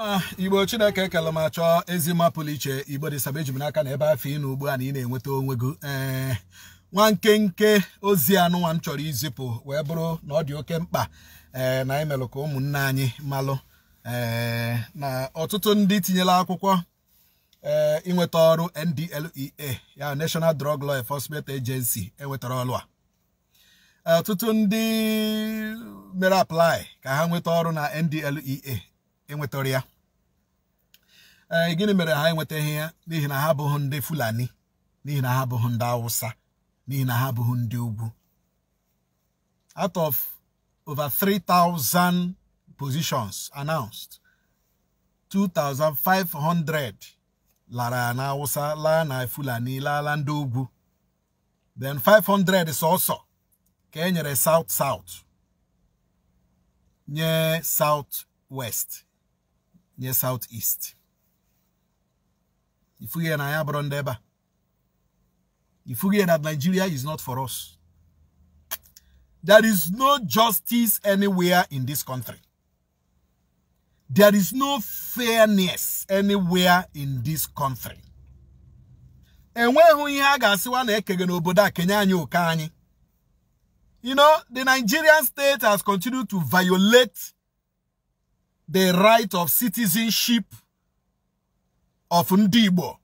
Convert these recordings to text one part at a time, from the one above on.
ma igbo chineke kele ma chọọ ezi mma iche igbo dị eji m n'aka na ebe afọ ị nọ ugbu a na ị na-enweta onwe gị ee eh, nwa nkenke ozi anụnwa m chọrọ izipụ wee bụrụ na ọ dị oke mkpa ee eh, na anyị melụ ka ụmụnne anyị malụ ee eh, na ọtụtụ ndị tinyela akwụkwọ ee ịnweta ọrụ NDLEA ya National Drug Law Enforcement Agency enwetara ọrụ a ọtụtụ ndị mere apply ka ha nweta ọrụ na NDLEA enwetara ya ee gịnị mere ha enwetaghị ya n'ihi na ha abụghị ndị fulani n'ihi na ha abụghị ndị awụsa n'ihi na ha abụghị ndị ugwu out of over 3,000 positions announced 2,500 lara na awụsa laa na fulani laala ndị ugwu then 500 sọsọ ka e nyere south south nye south west near southeast if we na ya bụrụ ndị ebe a that nigeria is not for us there is no justice anywhere in this country there is no fairness anywhere in this country And when we ga-asịwa na ekege a kenye you know the nigerian state has continued to violate the right of citizenship of Ndibo.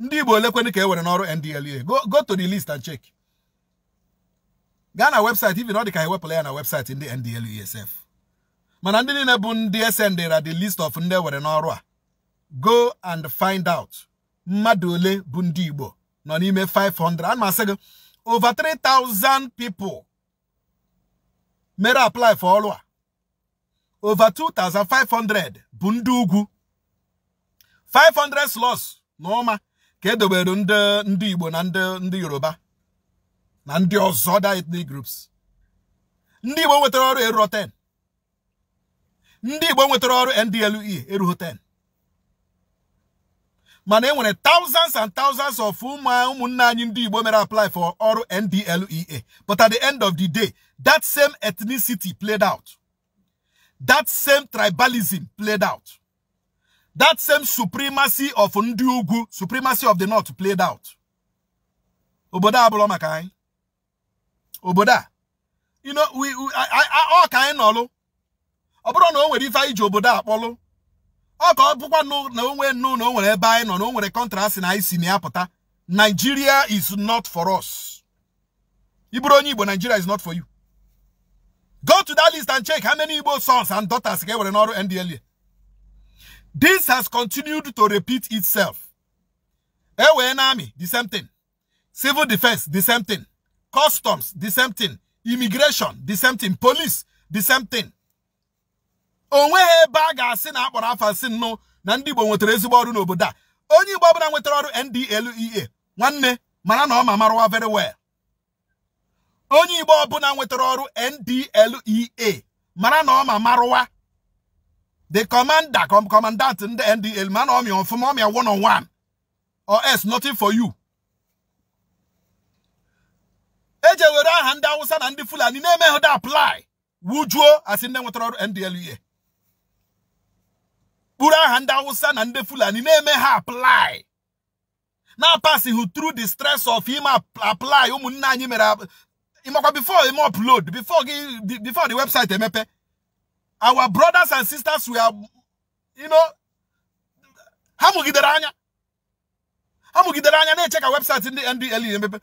Ndibo, lekweni Igbo olekweni NDLA. go go to the list and check Ghana website even ọ dị ka ewepụla ya na website in the sef Manandini ndị niile bụ ndị esendera the list of ndị ewere go and find out Madole ole bụ ndị 500 ana masị over 3000 people mere apply for ọrụ over 2,500 bụ ndị ugwu 500 slots n'ọma ka edobere ndị Igbo na ndị Yoruba na ndị ọzọ other ethnic groups ndị Igbo nwetara ọrụ eruo 10 ndị Igbo nwetara ọrụ NDLEA eruo 10 mana e nwere thousands and thousands of ụmụnne anyị ndị Igbo mere apply for ọrụ NDLEA but at the end of the day that same ethnicity played out that same tribalism played out. That same supremacy of Ndiugu, supremacy of the North played out. Oboda Abolomakai. Oboda. You know, we, we I, I, all kind of, Oboda no, where if I Oboda Apollo. Oh God, ọ bụkwa na no no na o no ebe anyị nọ na o nwere kọntrasị Nigeria is not for us. Ị bụrụ Nigeria is not for you. Go to that list and check how many Igbo sons and daughters were in Oru NDLA. This has continued to repeat itself. Ewe Army, the same thing. Civil defense, the same thing. Customs, the same thing. Immigration, the same thing. Police, the same thing. onweghị ebe a ga-asị na akpọrọ afọ asị nnụ na ndị Igbo nwetara ezigbo ọrụ n'obodo a onye Igbo ọbụla nwetara ọrụ NDLEA nwanne mara na ọ ma very well onye igbo ọbụla nwetara ọrụ ndlea mara na ọma marụwa the commander commandant ndị ndl mana ọmịa ọfụma ọmịa one on one or else nothing for you eji ewere aha ndị awụsa na ndị fulani na-eme hụda apply wujuo asị ndị nwetara ọrụ ndlea Kpuru aha ndị awụsa na ndị fulani na-eme ha apply na-apasịghị tru the stress of ime apply ụmụnne anyị mere before Imo upload, before, before the website Emepe, our brothers and sisters were, you know, ha mụgidere anya ha mụgidere anya na-eche ka webụsaịtị ndị NDLEA emepe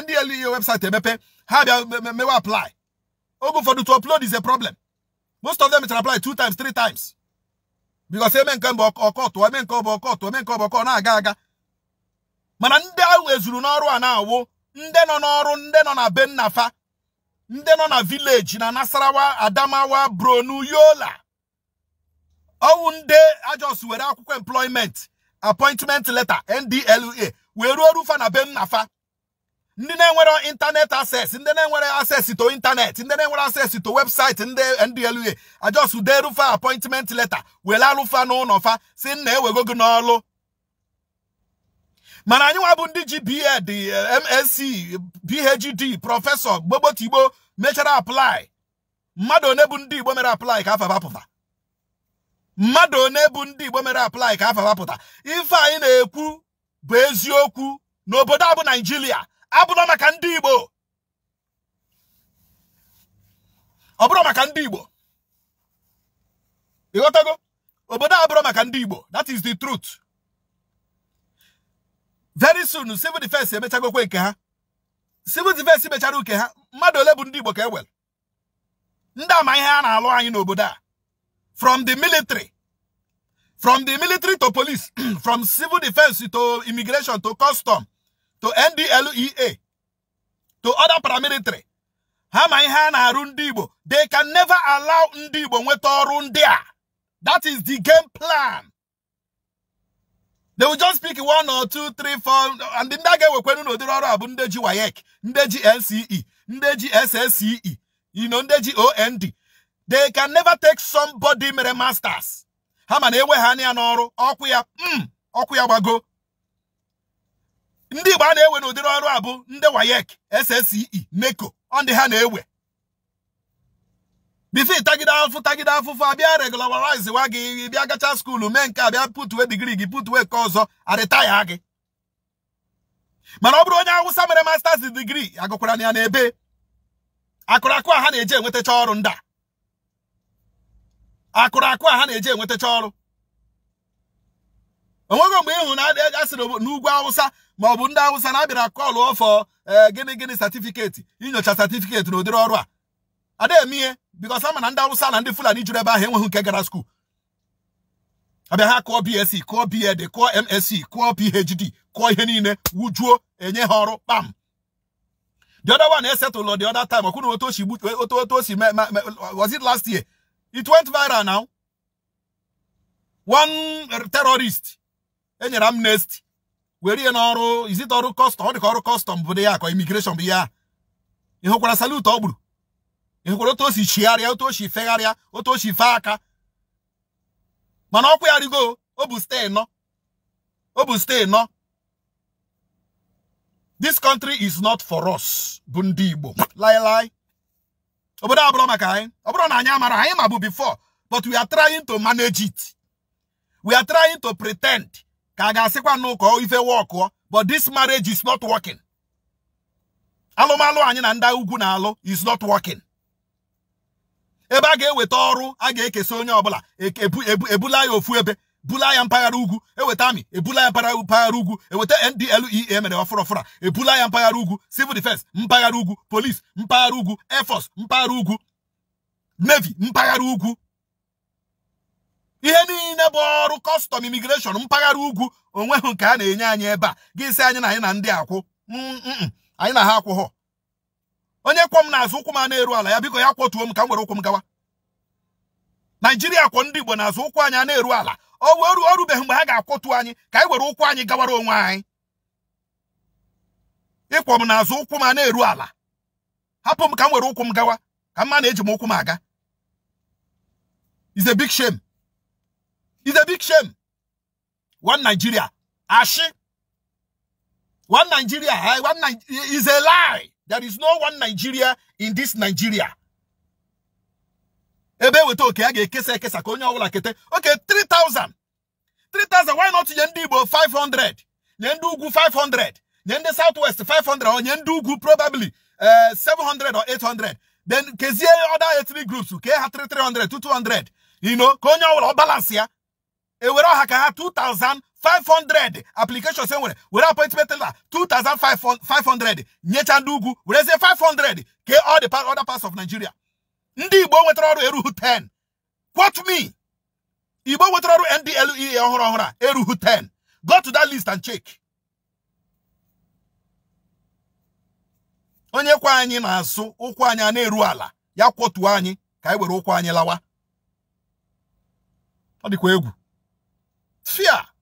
NDLEA webụsaịtị emepe How bịa mewe apply oge ụfọdụ to upload is a problem most of them chara apply two times three times because eme nke mbụ ọkọtụ eme come ọbụ court, eme nke ọbụ ọkọ na-aga aga mana ndị ahụ ezuru n'ọrụ a na-awụ ndị nọ n'ọrụ ndị nọ na bennafa ndị nọ na vileji na nasarawa adamawa bronu yola ọwụ ndị ajọs were akwụkwọ employment appointment letter ndla wee ruo rufa na bennafa ndị na-enwere internet access ndị na-enwere access to internet ndị na-enwere access to website ndị ndla ajọs ude rufa appointment letter were alụfa n'ụlọ si nna ewego gị n'ọlụ mana anyị nwa bụ ndị ji bed msc phd prọfesọ gbogbotigbo mechara aplai mmadụ one bụ ndị igbo mere aplai ka afa bapụta mmadụ one bụ ndị igbo mere aplai ka afa bapụta ife anyị na-ekwu bụ eziokwu na obodo abụ naijiria abụrọ maka ndị igbo ọ bụrụ maka ndị igbo ịghọtago obodo abụrọ maka ndị igbo that is the truth very soon civil defense emechagokwa nke ha civil defense mecha uke ha mmadụ ole bụ ndị Igbo ka e wel ndị ihe a na-alụ anyị n'obodo from the military from the military to police from civil defense to immigration to custom to NDLEA to other paramilitary ha ma ihe a na-arụ ndị Igbo they can never allow ndị Igbo nweta ọrụ ndị a that is the game plan they will just pick one or two three four and ndị a ga-ewekwenu n'ụdịrị ọrụ a bụ ndị ji WAEC ndị ji NCE ndị ji SSCE you ndị ji OND they can never take somebody mere masters ha ma na enwe ha ya n'ọrụ ọkụ ya mm, ọkụ ya gbago ndị Igbo a na-ewe n'ụdịrị ọrụ a bụ ndị wayek SSCE neko ọ ndị ha na-ewe bifo tagide afụ tagide afụfụ abịa regularize wa gị bịa gacha skuulu mee nke a bịa putue gị putwe nke ọzọ arịtaya gị mana ọ bụrụ onye awụsa mere masters digri agụkwara ya n'ebe akụrakụ a ha na eje enwetacha ọrụ nda a a ha na eje enwetacha ọrụ onweghị mgbe ịhụ na a sịrị n'ugwu awụsa ma ọ bụ ndị awụsa na-abịara kọlụ ọfọ gịnị gịnị satifiketi inyocha satifiketi na ụdịrị ọrụ a ada emie because ama na ndị awụsa na ndị fulani juru ebe ahụ enweghị nke gara skuul abịa ha kụọ bsc kụọ bed kụọ msc kụọ phd kụọ ihe niile wujuo enye ha bam. the other one said to Lord the other time ọkwụna otu osi otu otu was it last year it went viral now one terrorist enyere amnesty were ihe n'ọrụ is it ọrụ custom ọ dịka ọrụ custom bụ dị ya ka immigration bụ ya ịhụkwara salute ọ gburu ịhụkwara otu o si chigharịa otu o si fegharịa otu o si fee aka mana ọkwa ya rigo o bụ stee nọ o bụ nọ this country is not for us bụ Lie, lie. lailai obodo a bụrụ maka na anyị amara anyị ma bụ before but we are trying to manage it we are trying to pretend Kaga sekwa ga-asịkwa n'ụka ife wọkụọ but this marriage is not working Alo malo na ndị ugwu na-alụ is not working ebe a ga-eweta ọrụ a ga-ekesa onye ọbụla ebula ya ofu ebe bula ya mpaghara ugwu eweta amị ebula ya mpaghara ugwu eweta NDLEA e, e mere ọfụrọfụra ebula ya mpaghara ugwu civil defense mpaghara ugwu police mpaghara ugwu air mpaghara ugwu navy mpaghara ugwu ihe niile bụ ọrụ kọstọm imigreshọn mpaghara ugwu onweghị nke a na-enye anyị ebe a gị sị anyị na anyị na ndị akwụ mm, mm, mm. anyị na ha akwụghọ onye kwọ m n'azụ ụkwụ m a na-eru ala ya biko ya kwọtuo m ka m were ụkwụ m gawa naijiria kwọ ndị igbo n'azụ ụkwụ anyị a na-eru ala o wee orubeghị mgbe ha ga-akwọtu anyị ka anyị were ụkwụ anyị gawara onwe anyị ịkwọ m n'azụ ụkwụ m a na-eru ala hapụ m ka m were ụkwụ m gawa ka mma na-eji m ụkwụ m aga is a big shame is a big shame one Nigeria ashi one Nigeria one is a lie There is no one Nigeria in this Nigeria. Ebe kete. Okay, 3000. 3000 why not nye 500? Nye 500. Nye Southwest 500 or nye probably uh, eh, 700 or 800. Then kezie other ethnic groups Okay, ha 300 to 200. You know, Konya onye balance ya. ewere ọha ka ha 2500 applications e nwere were appointment letter 2500 nyecha ndị ugwu werezie 500 ke all the other parts of Nigeria ndị Igbo nwetara ọrụ eruhu 10 quote me Igbo nwetara ọrụ NDLEA ọhụrụ ọhụrụ a eruhu 10 go to that list and check onye kwa anyị na-asụ ụkwụ anyị a na-eru ala ya kwọtuo anyị ka anyị were ụkwụ anyị lawa ọ dịkwa egwu fear